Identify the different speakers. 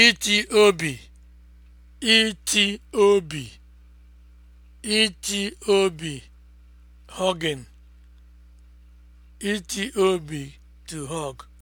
Speaker 1: iti obi iti obi iti obi hugging
Speaker 2: obi to hug